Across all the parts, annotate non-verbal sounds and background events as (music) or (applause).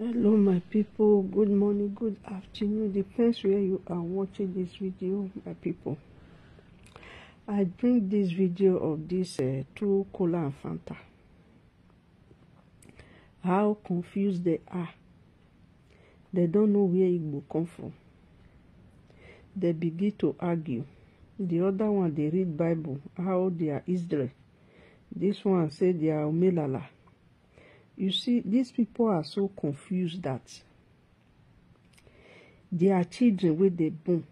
hello my people good morning good afternoon depends where you are watching this video my people i bring this video of this uh, two cola and fanta how confused they are they don't know where it will come from they begin to argue the other one they read bible how they are israel this one say they are omelala You see, these people are so confused that their children with dey born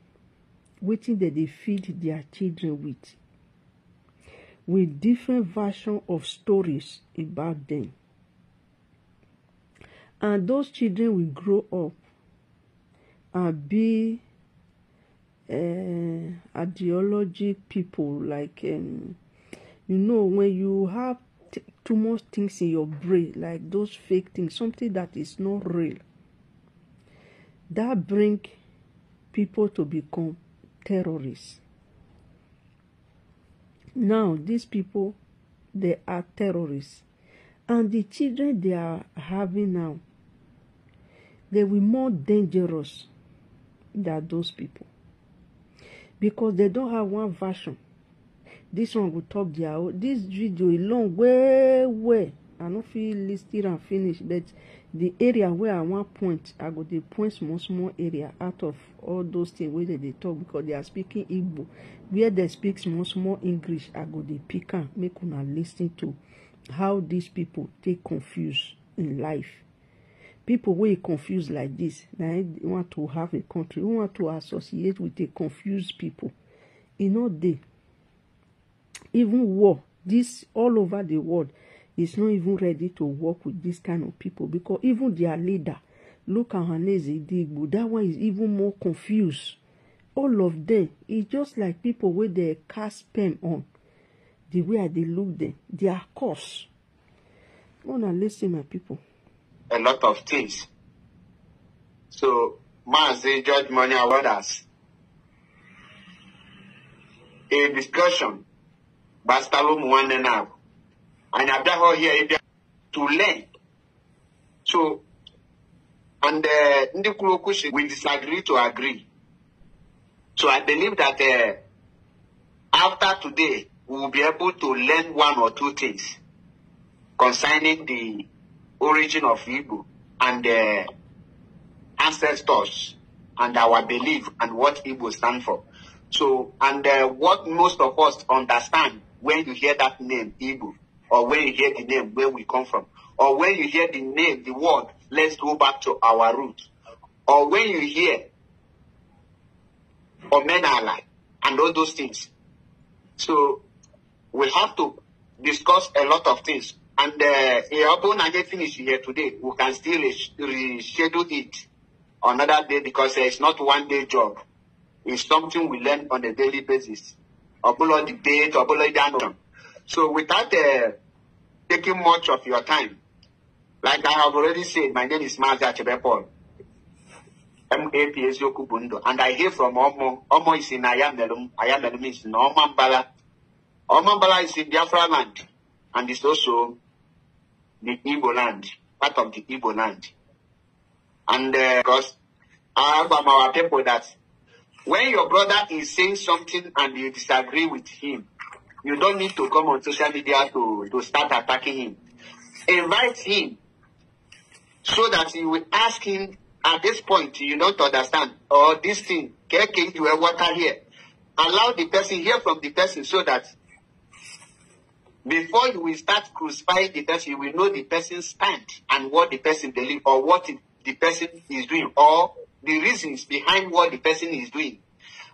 wetin dem dey feed their children with with different version of stories about them and those children will grow up and be uh, ideology people like um, you know when you have too much things in your brain, like those fake things, something that is not real. That bring people to become terrorists. Now these people, they are terrorists, and the children they are having now, they will more dangerous than those people because they don't have one version This one go talk their own dis video e long well well i no fit list it and finish but the area wey i wan point i go dey point small small area out of all those things wey dem dey talk because they are speaking igbo where dem speak small small english i go dey pick am make una lis ten to how these people take confuse in life people wey e confuse like this na want to have a country we want to associate with a confused people e no dey even war this all over the world is not even ready to work with this kind of people because even their leader look at Ohanaeze Ndigbo that one is even more confused all of them is just like people wey dey cast pen on the way i dey look them their cause una lis ten my people. a lot of things so Mazi George Money award a discussion gbasitalo mu nwanne na anyị abịa ha ọhịa ịbịa to learn so and ndị kwuru okwu we disagree to agree so i believe that uh, after today we will be able to learn one or two things concerning the origin of Igbo and the uh, ancestors and our belief and what Igbo stand for. So, and uh, what most of us understand when you hear that name, Igbo, or when you hear the name where we come from, or when you hear the name, the word, let's go back to our root, or when you hear or men are alike and all those things. So we have to discuss a lot of things. And uh, even I get finished here today, we can still reschedule it another day because it's not one day job. It's something we learn on a daily basis. Obolo debate, Obolo Dandon. So without uh, taking much of your time, like I have already said, my name is Mazda Chebepol. MAPS Yokubundo. And I hear from Omo. Omo is in Ayamelum. Ayamelum is in Omambala. Omambala is in Biafra land. And it's also the Igbo land, part of the Igbo land. And uh, because I have from our people that When your brother is saying something and you disagree with him, you don't need to come on social media to, to start attacking him. Invite him so that you will ask him at this point, you don't understand, or this thing, KK, you have water here. Allow the person, hear from the person so that before you will start crucifying the person, you will know the person's stand and what the person believes or what the person is doing or the reasons behind what the person is doing.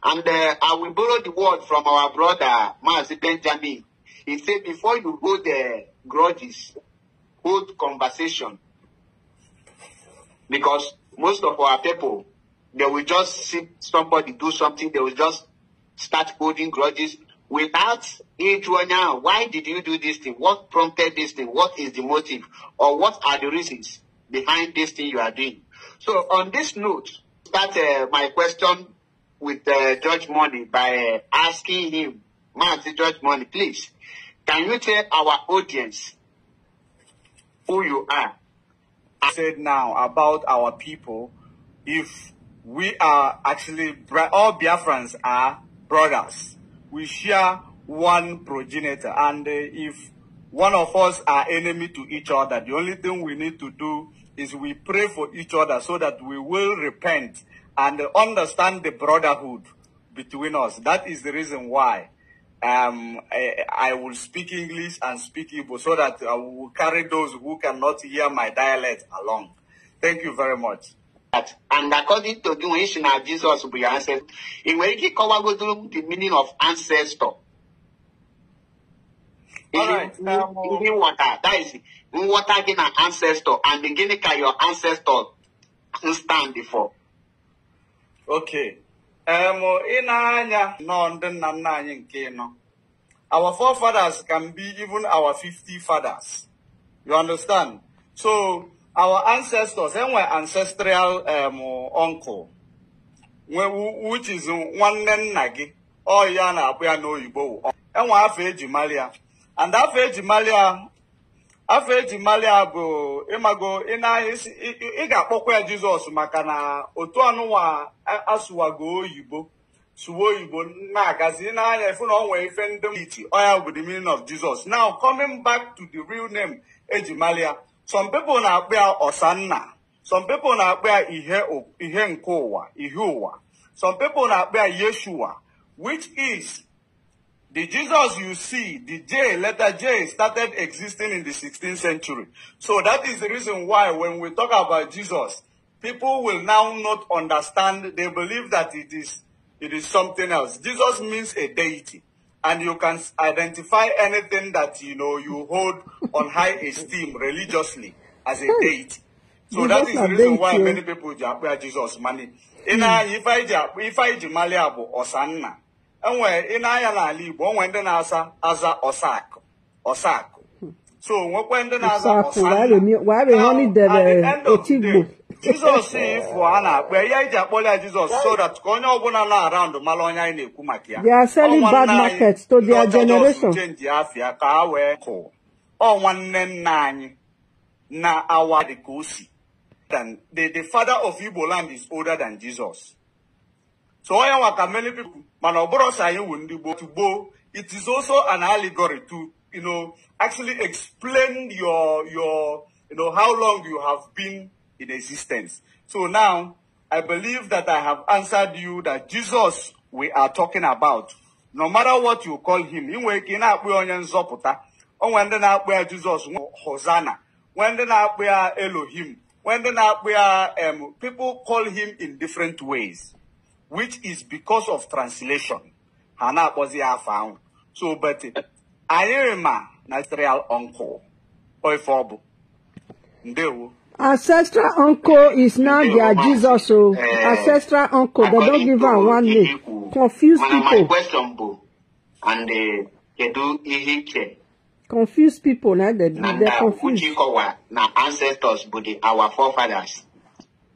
And uh, I will borrow the word from our brother, Master Benjamin. He said, before you hold the grudges, hold conversation. Because most of our people, they will just see somebody do something, they will just start holding grudges without it now. Why did you do this thing? What prompted this thing? What is the motive? Or what are the reasons behind this thing you are doing? So on this note, start uh, my question with uh, Judge Money by uh, asking him, Master Judge Money, please, can you tell our audience who you are? I said now about our people, if we are actually, all Biafrans are brothers. We share one progenitor. And uh, if one of us are enemy to each other, the only thing we need to do is we pray for each other so that we will repent and understand the brotherhood between us. That is the reason why um, I, I, will speak English and speak Igbo so that I will carry those who cannot hear my dialect along. Thank you very much. And according to the ancient of Jesus, we answer, in where he the meaning of ancestor. All right. Um, water. That is nghọta gị na ancestor and gịnị ka your ancestor stand for okay em ị na-anya nọọ ndị nna nna anyị nke nọ our forefathers can be even our 50 fathers you understand so our ancestors enwe ancestral um, uncle which is nwanne nna gị ọ ya na-akpụ ya n'oyibo enwe afọ eji malia and afọ eji malia afọ eji malia bụ ịmago ị ga-akpọkwa ya jizọs maka na otu ọnụnwa asụwago oyibo suwa oyibo na-agazi n'anya efu na onwe ife ndị ichi oya with the meaning of jesus now coming back to the real name eji malia some people na-akpọ ya ọsanna some people na-akpọ ya ihe nke ụwa ihe ụwa some people na-akpọ ya yeshua which is The Jesus you see, the J, letter J, started existing in the 16th century. So that is the reason why when we talk about Jesus, people will now not understand. They believe that it is, it is something else. Jesus means a deity. And you can identify anything that, you know, you hold on high esteem religiously as a hmm. deity. So that is the reason why many people Jesus mani. Ị na-anya ife anyị enwe ị na n'ala Igbo onwe ndị na-asa aza ọsakụ ọsakụ so nwekwa ndị na-aza ọsakụ Jizọs ifụ a na-akpọ ya iji akpọrọ ya Jizọs so ka onye ọbụla na araụndụ mara onye anyị na-ekwu maka ya chenji afia ka a wee kụ ọ nwanne nna anyị na awa dị ka o si the father of Igbo land is older than So I waka many people, manoboro sayiwu ndibo to bo. It is also an allegory to, you know, actually explain your, your, you know, how long you have been in existence. So now, I believe that I have answered you that Jesus we are talking about, no matter what you call him, inwe ike na-akpụ onye nzọpụta, or when na na-akpụ where Jesus Hosanna, when ndị where Elohim, when ndị where um, people call him in different ways. which is because of translation Hana na-akpọzi afa so but anyị ma ancestral uncle ife ọ ndewo ancestral uncle is now their jesus o oh. eh, ancestral uncle they don't give am one name confuse people my question, and kedu eh, ihe iche confuse people na they they confuse uchikowa na ancestors bụ our forefathers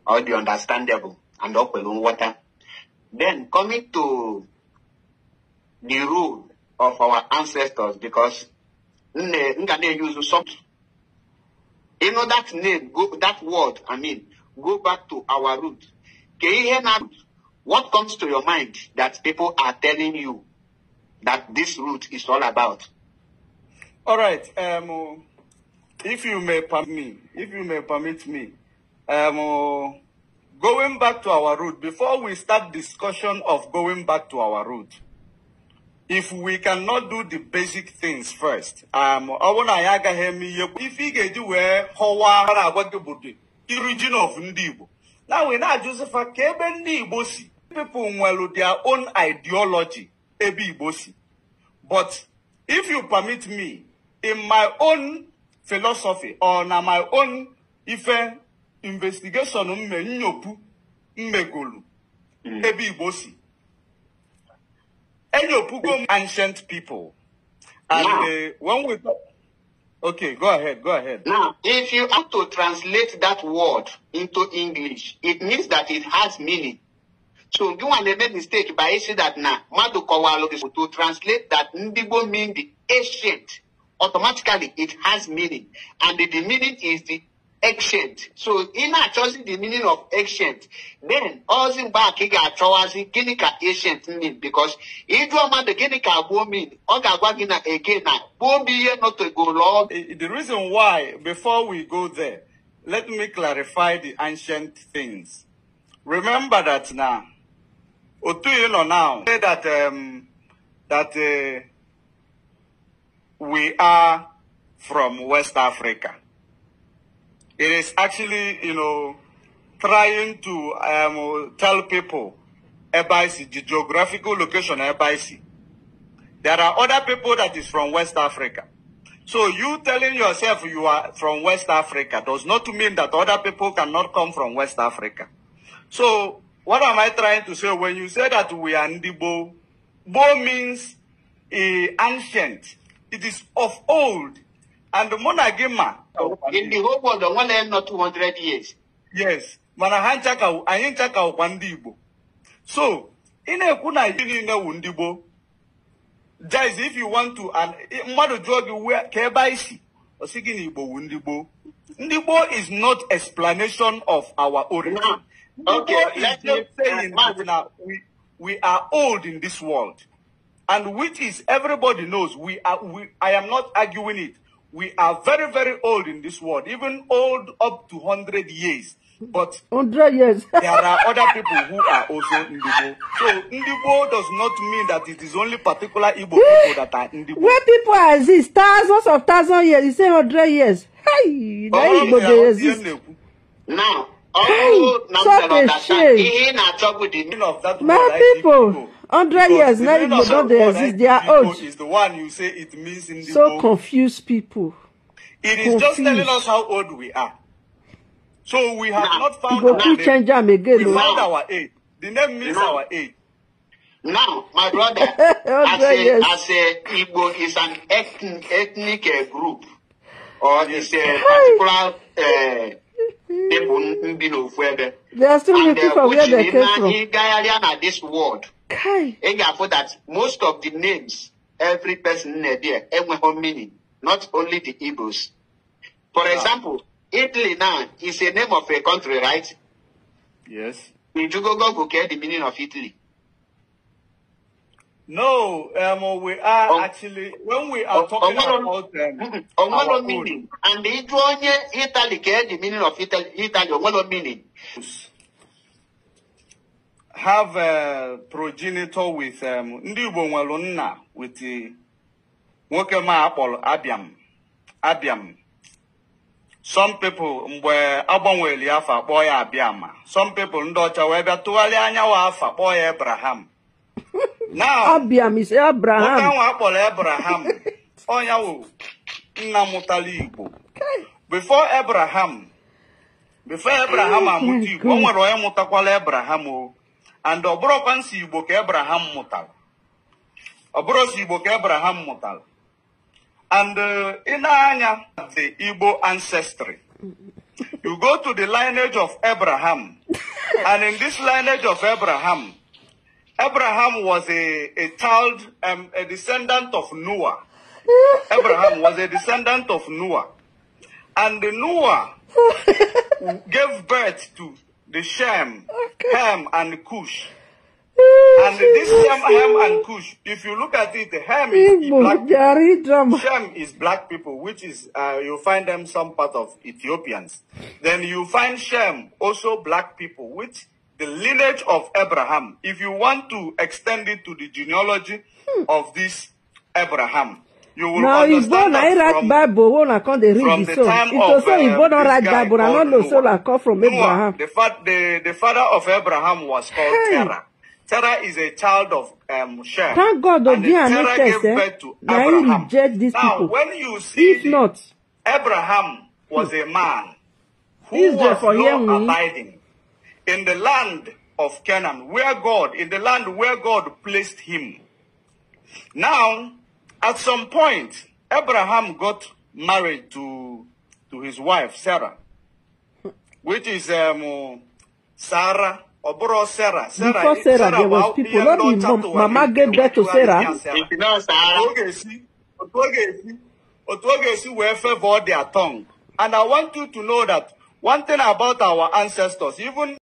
all the understandable and okwelu water. Then coming to the rule of our ancestors, because Ngane use something. You know that name, go, that word, I mean, go back to our root. What comes to your mind that people are telling you that this root is all about? All right. Um, if you may permit me, if you may permit me, um, Going back to our root before we start discussion of going back to our root, if we cannot do the basic things first, um, ọwụ na to agaghị eme ihe ife i you ga-eji how họwa a na-agwa gị the irijin of ndị Now we know Joseph ajuzifa ka people nwere their own ideology Ebi Igbo but if you permit me in my own philosophy or in my own ife investigeshọn mme nnyopụ mmegolu ebe igbo si enyopụgo m mm. ancient people and uh, when we talk okay go ahead go ahead now if you have to translate that word into english it means that it has meaning so you want to make mistake by saying that now mmadụ kọwalụ gị to translate that ndigbo mean the ancient automatically it has meaning and the, the meaning is the exchange. So ị na-achọzi the meaning of exchange. Then all mgbe a ka ị ga-achọwazi ka ancient mean because ịjụọ mmadụ gịnị ka gboo mean ọ ga-agwa gị na again na gboo m ihe nọtegolo. The reason why before we go there let me clarify the ancient things. Remember that now. Otu you know now say that um, that uh, we are from West Africa. It is actually, you know, trying to um, tell people Ebaisi, the geographical location of Ebaisi. There are other people that is from West Africa. So you telling yourself you are from West Africa does not mean that other people cannot come from West Africa. So what am I trying to say? When you say that we are Ndibo, Bo means uh, ancient. It is of old. And the Monagima. In the whole world, the one end not 200 years. Yes. manahan chaka nchaka, anyị nchaka ụkwa ndị So, in na kuna na iri niile Guys, if you want to, and mmadụ jụọ gị ka ebe anyị si, ọ sị gị is not explanation of our origin. Okay, Igbo is just saying that now we, we are old in this world. And which is, everybody knows, we are, we, I am not arguing it. we are very, very old in this world, even old up to 100 years. But 100 years. (laughs) there are other people who are also Ndibo. So Ndibo does not mean that it is only particular Igbo people that are Ndibo. Where people exist, thousands of thousands years, you say 100 years. Hey, na Igbo dey exist. Now, all hey, such a shame. My people. people. 100 years, now Igbo don't they exist, they are old. Is the one you say it means in the So confused people. It is confused. just telling us how old we are. So we have now, not found our age. Change them again, we oh. found our age. The name means now, our age. Now, my brother, (laughs) as, a, yes. as a Igbo is an ethnic, ethnic uh, group, or eh, eh, is a particular uh, people, They are still looking for where they came from. this world. Kai. And for that, most of the names, every person in there, everyone meaning, not only the Igbos. For yeah. example, Italy now is a name of a country, right? Yes. Did go get the meaning of Italy? No, um, we are um, actually when we are um, talking um, about them, um, (laughs) our meaning, and the Italy, Italy, the meaning of Italy, Italy, meaning. have a progenitor with um, ndị Igbo nwere nna with uh, nwoke ma akpọrọ Abiam Abiam some people mgbe agbanwere afọ akpọ ya Abiama some people ndị ọcha wee bịa tụgharịa anyanwụ afọ akpọ ya Abraham (laughs) Abiam is Abraham nwoke ahụ akpọrọ Abraham (laughs) ọnya wụ nna mụtara Igbo before Abraham before Abraham amụta Igbo o nwere onye mụtakwala Abraham o and the bụrụkwa nsị Abraham mụtara ọ bụrụ Abraham mụtara and in uh, na na-anya the Igbo ancestry you go to the lineage of Abraham (laughs) and in this lineage of Abraham Abraham was a, a child, um, a descendant of Noah. Abraham was a descendant of Noah. And Noah (laughs) gave birth to the Shem, okay. Ham, and Cush. Oh, and this Shem, Ham, and Cush, if you look at it, Ham is black people. Shem is black people, which is, uh, you find them some part of Ethiopians. Then you find Shem, also black people, which the lineage of Abraham. If you want to extend it to the genealogy hmm. of this Abraham, you will now, understand that from... Now, Igbo na come dey read the soul. It also Igbo don write Bible, na no know soul I come from Noah, Abraham. The, fa the, the father of Abraham was called hey. Terah. Terah is a child of um, Shem. Thank God, and the Terah gave birth to Abraham. Reject these now, people. when you see... If the, not... Abraham was a man who Israel was law-abiding in the land of Canaan, where God, in the land where God placed him. Now, At some point, Abraham got married to, to his wife, Sarah, which is um, Sarah. Oburo Sarah. Sarah. Before eh, Sarah, Sarah there was people. Not even mom, mama gave birth to Sarah. Otwogesi were favor their tongue. And I want you to know that one thing about our ancestors, even